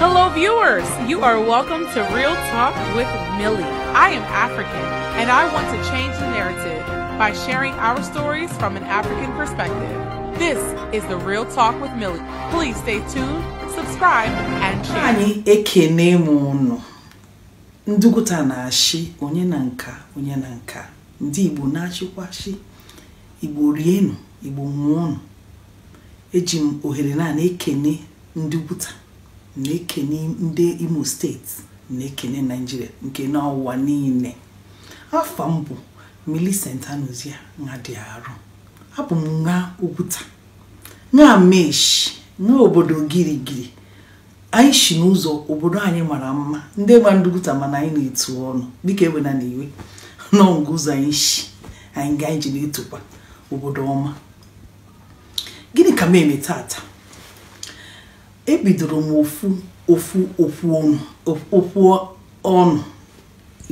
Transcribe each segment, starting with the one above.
Hello, viewers. You are welcome to Real Talk with Millie. I am African, and I want to change the narrative by sharing our stories from an African perspective. This is the Real Talk with Millie. Please stay tuned, subscribe, and share. Anyị ekene m Ndụgụta na-achị onye na nka onye na nka. Ndị Igbo na-achịkwachị. Igbo rienụ, Igbo nwụọnụ. Eji m ohere naanị ekene ndụgụta. na-ekene ndị imo steeti na-ekene naijiria nke n'ụwa niile afọ mbụ bụ milicent anụzia nha dị arụ abụ m nha okwuta nha meshi nha obodo girigiri anyị si n'ụzọ obodo anyị mara mma ndị gba ndụgụta mana anyị na-etu ọnụ dịka ewena na iwe n'ọngụ ụzọ anyị si anyị ga anyị ji na-etokwa obodo ọma gịnị ka m eme tata ebidoro m ofu ofu okwu ọnụ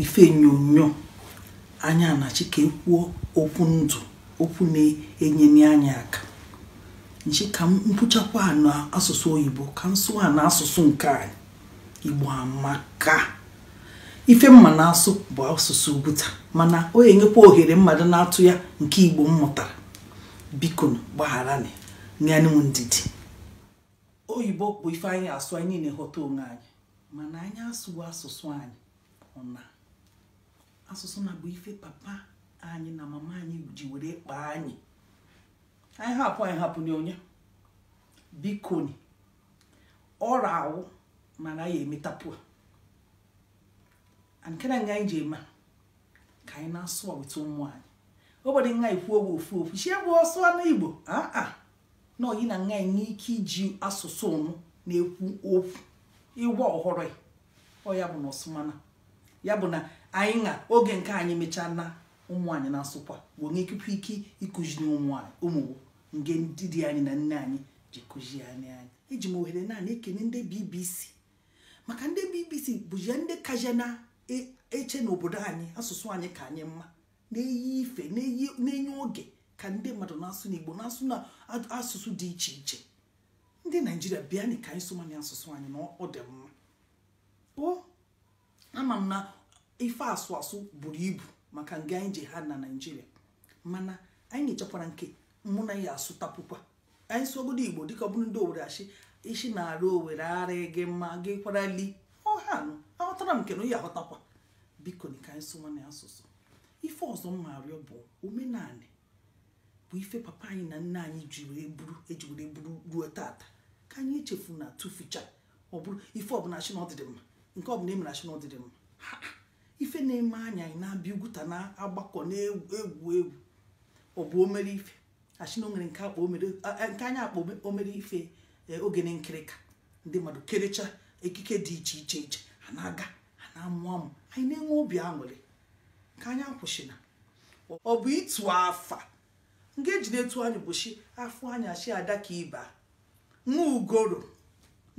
ife onyonyo anya na chike kwuo okwu ndụ okwu na-enye anya aka nchi ka m mkpụchakwa na asụsụ oyibo ka nsụ a na asụsụ nke anyị igbo amaka ife mma na-asụ bụ asụsụ ubuta mana o enyekwa ohere mmadụ na-atụ ya nke igbo m mụtara biko gbagharani nyanụ ndidi oyibo bụ ife anyị asụ anyị na eghọta onwe anyị mana anyị asụwo asụsụ anyị ọna asụsụ na bụ ife papa anyị na mama anyị ji were kpaa anyị anyị hapụ anyị hapụ n'onye bikoni ọrụ awụ mana anyị emetapụ a nke na nga anyị ji eme ka anyị na-asụ weta ụmụ anyị obodo nwa kwuo owe ofu ofu chi egwu ọsụ na igbo aa ah, ah. na oyi na nga enwe ike iji asụsụ ụnụ na-ekwu okwu ịgwa ọhụrụ ọya e, ọ ya bụ na ọsụmana ya bụ na anyị na oge nke anyị mechaa na ụmụ anyị na-asụkwa bụ onye ike ịkụziri ụmụ nge ndị di anyị na nne anyị ji kụzi anyị anyị eji m ohere naanị ekene ndị BBC maka ndị BBC bụzie ndị kaja na-eche e, n'obodo anyị asụsụ anyị ka anyị mma na-eyi ife na-enye oge ka ndị mmadụ na-asụ n'igbo na-asụ na asụsụ dị iche iche ndị naijiria bịa ka anyị somani asụsụ anyị na ọ dị mma ama m na ife asụ asụ buru ibu maka nga anyị ji ha na naijiria mana anyị na-echekwara nke mụ na ya asụtapụkwa anyị obodo igbo dịka ọ bụrụ ndị owere achị isi na-arụ owere ara gị mma gị kwarali ha nụ aghọtara m nke na ya aghọtakwa biko ka anyị sụwa asụsụ ife ọzọ m arịọ bụ omenanị bụ ife papa anyị na nna anyị ji were buru eji were buru ruo tata ka anyị echefu na tuficha ọ ife ọbụla chi na ọdịdị mma nke ọbụla emere chi na ọdịdị mma ife na-eme anya anyị na-abịa ugwuta na-agbakọ na-egwu egwu ọ bụ omere ife achina o nwere nke anyị akpọ omere ife e, oge na nkirịka ndị mmadụ kerecha ekike dị iche iche iche a na-aga a na-amụ amụ anyị na-enwe obi aṅụrị ka anyị akwụsịna ọ bụ ịtụ afa nga e na etu anyị bụchi afọ anya chi ada ka ịba nwa ugoro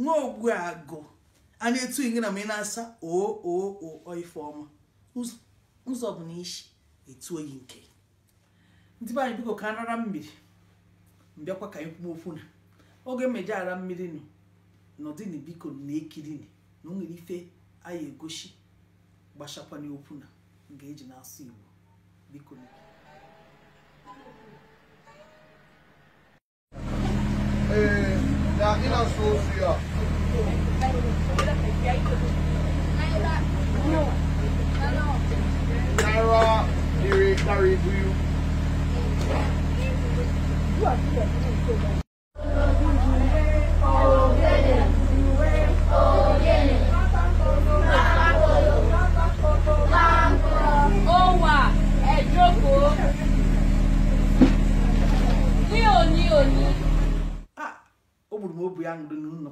nwa ogbu agụ a na-etu inge na ma ị na-asa o oo oo ife ụzọ bụ na isi etu oyi nke ndị be anyị biko ka anara mmiri mbịakwa ka anyị kwuo okwu na oge mmeje ara mmiri nọ n'ọdịni biko na ekirini na o nwere ife anyị egosi gbasakwana okwu na nga eji na-asụ Igbo biko na Mira Naira, do you?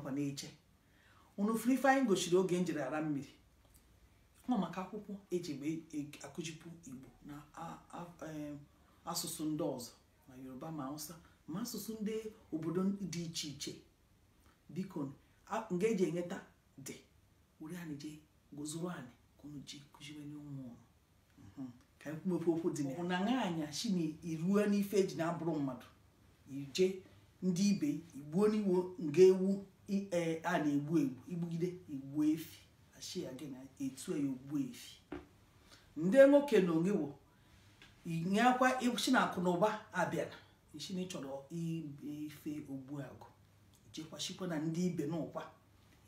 ọkwa na-eche unu furu ife anyị gochiri oge njiri ara mmiri ọ maka akwụkwọ eji e akụjipụ igbo na asụsụ ndị ọzọ ma yoruba ma na-awụsa ma asụsụ ndị obodo dị iche iche biko nga eji e enweta dị were anyị jee gozuru anyị ka unu ji kụziwe n'ụmụ ọrụ mhm. ka anyị kwumepe okwu dị na na anya shi na iruo n'ife eji na-abụrụ mmadụ ije ndị ibe igbuo n'iwo nga ewu e a na-egbu egbu igbugide igbu efi ashi ya gị na etu ya e, ogbu efi ndị nwoke na onwe wo inye akwa na akụ na ụba abịara ichi na ịchọrọ ife ogbu agụ ichekwashikwa na ndị ibe n'ụkwa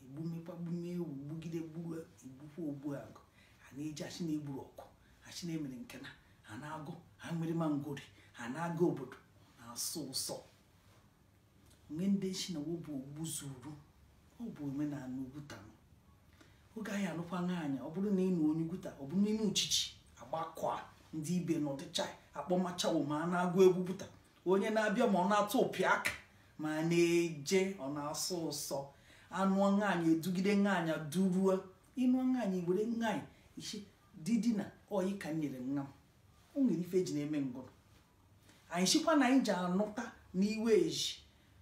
egbumekwa gbume ewu gbugide gburu igbukwa ogbu agụ a na-eji achi na-egburu ọkụ achi na-emere nke na ha na-agụ ha nwere mangori ha na agụ obodo na-asụ ụsọ ngendeshe na wobụ ogbu zuru ọ bụ omenala ugwuta oge anyị alụkwa nwaanyị ọ bụrụ na ị nụ onye gwuta ọ bụrụ n'ime uchichi agbakọa ndị ibe na ọdịcha akpọmacha ma a na-agụ egwu gwuta onye na-abịa ma ọ na-atụ ụpị aka ma na-eje ọ na-asọ ụsọ anụ nwaanyị edugide nwaanyị duruo ịnụ nwaanyị were nwaanyị isi didi na oyi ka nyere nna m o nwere ife eji na-eme ngụrụ anyị sikwa na anyị ji anụta n'iwe eji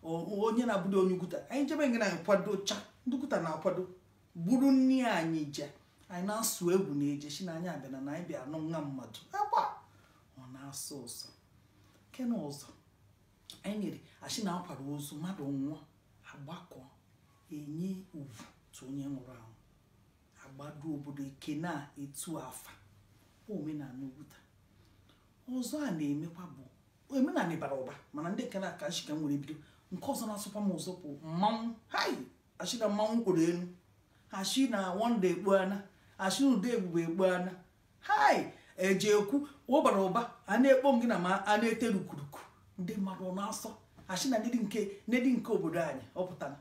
onye na-abụdo onye ukwuta anyị jebe nga na kwado cha ndị na-akwado buru nri anyị je anyị na-asụ egwu na eje si na anyị abịana na anyị bịa anụ nwa mmadụ agba ọ na-asụ ụzọ nke na ụzọ anyị nyere ashi na-akwado ozu mmadụ nwụọ agbakọ enye ugwu tụ onye nwụrụ anwụ agbado obodo eke na-etu afa omenala ukwuta ọzọ a na-emekwa bụ omenala bara ụba mana ndị kere aka nshika nwere bido nke ọzọ na-asụkwa m ụzọ bụ mmanwụ hai achị na mmanwụ kwuru elu achị na wanda ana achị na ude ebube ana hai eje ekwu ụbara ụba a na-ekpo gị na ma a na-ete rukuruku ndị mmadụ ọ na-asọ ashi na ndị nke ndị nke obodo anyị ọ pụtara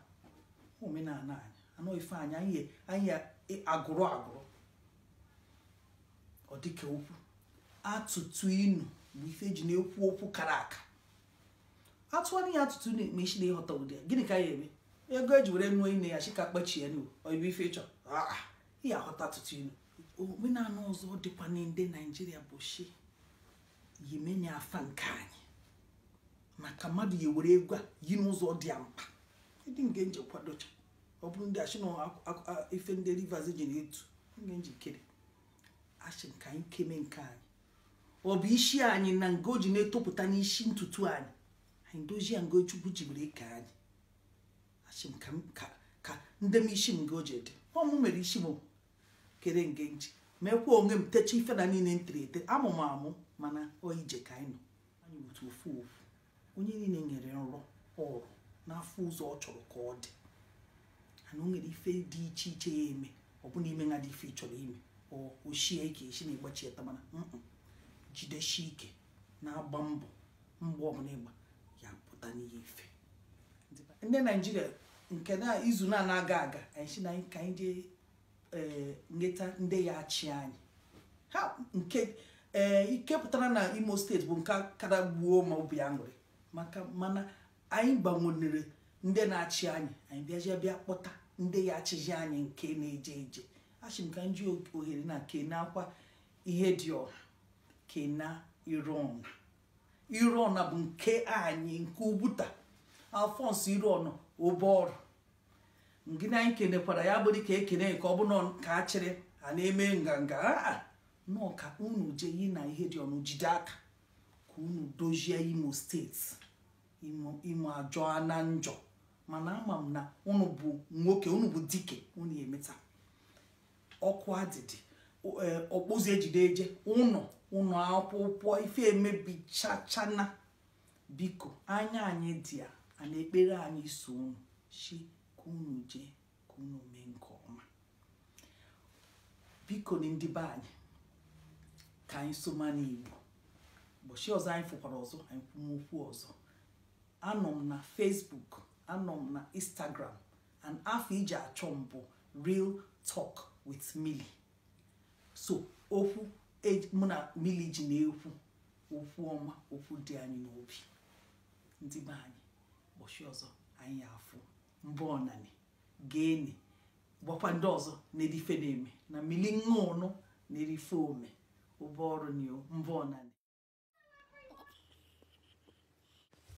omenala anyị anụ ife anyị anyị anyị e, agụrụ agụrụ ọ dịka okwu atụtụ inu bụ ife eji na-ekwu okwu kara aka atụwana ya atụtụ na-eme na ịghọta ụdị ya gịnị ka ya eme ego eji were nụọ ine ya chika kpechie nu oyibo ife ịchọ ya ah, ah. aghọta atụtụ inu omenala ọzọ dịkwa na ndị naijiria bụ shi yimenya afa nke anyị maka mmadụ ya were egwu a yi n'ụzọ dị ya mkpa ndị nge nje kwadocha ọ bụrụ ndị ashị na ndị rivers ji na-etu nge kere ashị nke anyị keme nke anyị ọ bụ isi anyị na nga o ji na-etopụta n'isi ntutu anyị anyị dozie ngo chukwu ike anyị achị m ka ndị m isi m o ji dị ọmụ mere isi m kere nge nji mekwa onwe m techa ife na niile ntiri ete amụ m amụ mana ọ ije ka anyị nọ anyị otu ofu ofu onye niile nyere nrọ ọrụ n'afọ ụzọ ọ chọrọ ka ọ dị ana o nwere ife dị iche iche ya eme ọ bụla ime na dị ife chọrọ ime ọ ochie ka esi na ịgbachi eta mana jideshi ike na-agba mbọ mgbe ọbụla ịgba ya pụta n'ihe ife ndị naijiria nke na izu na anaghị aga anyị si na ka anyị jee nweta eh, ndị ya achị anyị ha nke eh, ike pụtara na imo steeti bụ nke kara gbuo ma obi aṅụrị maka mana anyị gbanwere ndị na-achị anyị anyị bịaji bịa kpọta ndị ya achịji anyị nke na-eje eje achị m ka m ji ohere na kena akwa ihe dị ọha kena iru ọha irona bụ nke anyị nke ubuta alfons iron obeọrụ ngị na anyị kenekwara ya bụrụ ka ekene nke ọ ka achịrị a na-eme nganga a nọ ka unu yi na ihe dị ọnụ jide aka ka unu dozie imo steeti imo ajọ na njọ mana ama m na unu bụ nwoke unu bụ dike unu emeta ọkụ adịdị ọkpụzi ejide eje ụnọ ụnọ akwụkwọ ife emebichachana biko anya anyị dị a ana ekpere anyị so unu chi ka unu jee ka mee nke ọma biko na ndị be anyị ka anyị soma n'igbo ụbọchị ọzọ anyị fụkwara ọzọ anyị kwumokwu ọzọ anọ m na fesbuk anọ m na instagram and afọ iji achọ m bụ real talk with mili so okwu mụ na mmiri ji na-ekwu okwu ọma okwu dị anyị n'obi ndị be anyị ụbọchị ọzọ anyị afụ mbụ ọnanị gaeni gbakwa ndị ọzọ na-edife na-eme na mmiri nṅụnụ na-erife ome ụbọ ọrụ na mbụ